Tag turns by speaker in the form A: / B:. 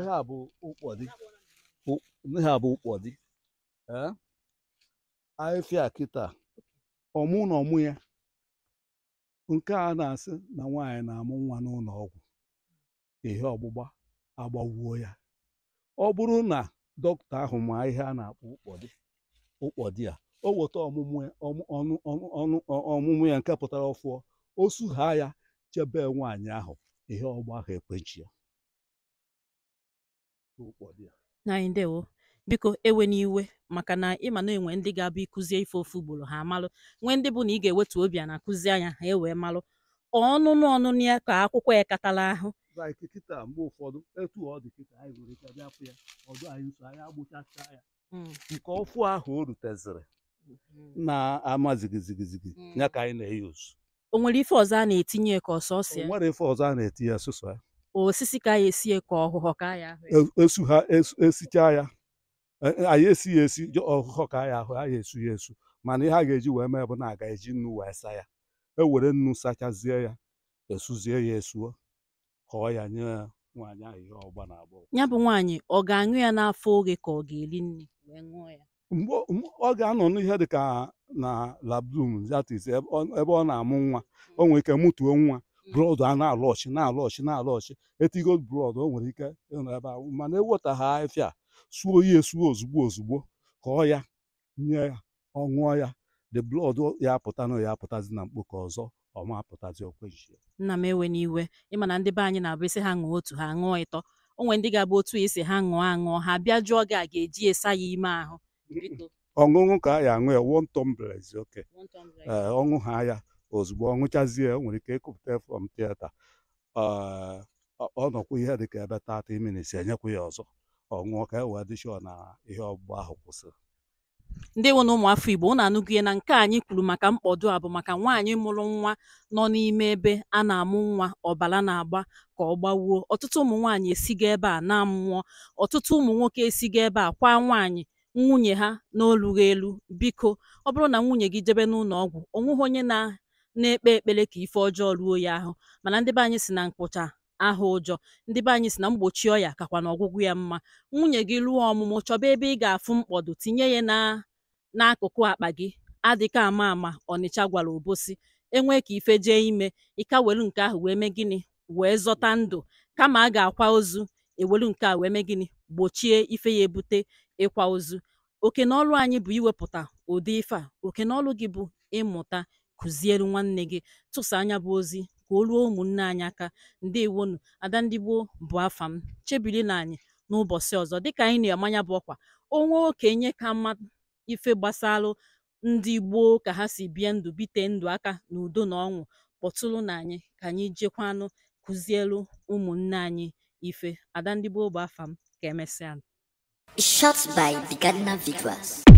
A: ihe a bụ ụkpọdị ihe a bụ ụkpọdị ahịfịa kịta ọmụ na ọmụ ya nke a na-asị na nwaanyị na-amụ nwa n'ụlọ ọgwụ ihe ọgbụgba agbagwuo ya ọ bụrụ na dọkịta ahụ ma ihe a na-akpọ ụkpọdị ụkpọdị a o weta ọmụmụ ya nke pụtara ọfụọ o sughaa ya chebe nwaanyị ahụ ihe ọgba ahụ ekpechi ya
B: anyị ndewo biko ewe iwe maka na ịma na enwe ndị ga-abụ ikuzie ife ofu ugboro ha amalụ nwee ndị bụ na ị ga-ewetu obi a na-akụzi anya ha ewee malụ ọnụnụ ọnụnụ ya ka akwụkwọ ya ahụ mgbe nwere ife ọzọ
A: a na-etinye ka ọsọ na-etinye ya
B: osisi ka ya esie ka ọhụhọ ka ya
A: ahụ esu ha esichaa ya anyị esighị esi ọhụhọ ka ya ahụ anyị esu ya esu mana ihe a ga-eji wee mee bụ na aga eji nnu wee saa ya ewere nnu sachazie ya esuzie ya esuo kọọ ya nye nwaanyị ahụ ihe ọgba na agbọghọ
B: ya bụ nwaanyị ọ ga-aṅụ ya n'afọ oge ka ọ ga-eri nri wee ṅụọ ya mgbe ọ
A: ga-anọ n'ihe dị ka na labdum that ebe ọ na-amụ nwa o nwere ike mụtuo nwa brọd a na-alụ na-alụ ọchị na-alụ brọd o nwere ike ịnọ ebe ahụ mana eweta ha afịa suo ya esuo ozugbo ozugbo ka ya nye ya ọ ya the blood ya apụta na ya apụtazi na mkpo ọzọ ọma apụtazi
B: nna m ewe n'iwe ịmana ndị be anyị na-abụ isi ha ṅụọ otu ha ṅụọ ịtọ o nwere ndị ga-abụ otu isi ha ṅụọ aṅụọ ha bịa jụọ gị a ga-eji esa ya ime ahụ
A: ọṅụṅụ ka a ya aṅụ ya wontombrez oke eh, ọṅụ ha ya ozugbo ọ ṅụchazie o nwere ike ịkụpụta from tieta ọ nọkwa ihe dịka ebe tata minits enyekwa ya ọzọ ọ ka e wee dị na ihe ọgbụgba ahụ kwụsịrị
B: ndị nwe na ụmụafọ Igbo na anụgide na nke anyị kwuru maka mkpọdo a bụ maka nwaanyị mụrụ nwa nọ n'ime ebe a na-amụ nwa ọbara na-agba ka ọ gbawuo ọtụtụ ụmụ nwaanyị esigo ebe a na-amụọ ọtụtụ ụmụ nwoke esigo ebe a kwa nwaanyị nwunye ha n'olughị elu biko ọ bụrụ na nwunye gị jebe n'ụlọ ọgwụ onweghị onye na na-ekpe ekpere ka ife ọjọọ ruo ya ahụ mana ndị be anyị si na mkpụcha aha ụjọ ndị be anyị si na mgbochi ọya kakwa na ọgwụgwụ ya mma nwunye gị ruo ọmụmụ chọba ebe ị ga-afụ mkpọdụ tinye ya na n'akụkụ akpa gị adịka ama ama ọnịcha gwara obosi enwe ka ife jee ime ịka welu nke ahụ wee mee gịnị wee zọta ndụ kama a ga-akwa ozu ewelu nke a wee mee gịnị gbochie ife ya ebute ịkwa ozu oke na anyị bụ iwepụta ụdị ife a oke na gị bụ ịmụta kụziere nwanne gị tụsa anya bụ ozi ka o ruo ụmụnne anyị aka ndị ada ndị gboo bụ afa m na anyị n'ụbọchị ọzọ dịka anyị na-amanya bụ ọkwa onwe okenye ka mma ife gbasara ndị gboo ka ha si bie ndụ bite ndụ aka n'udo na ọṅụ kpọtụrụ na anyị ka anyị jekwanụ kụzielu ụmụnne anyị ife ada ndị gboo bụ afa m ka emesịa Shot by Bigadna Vigras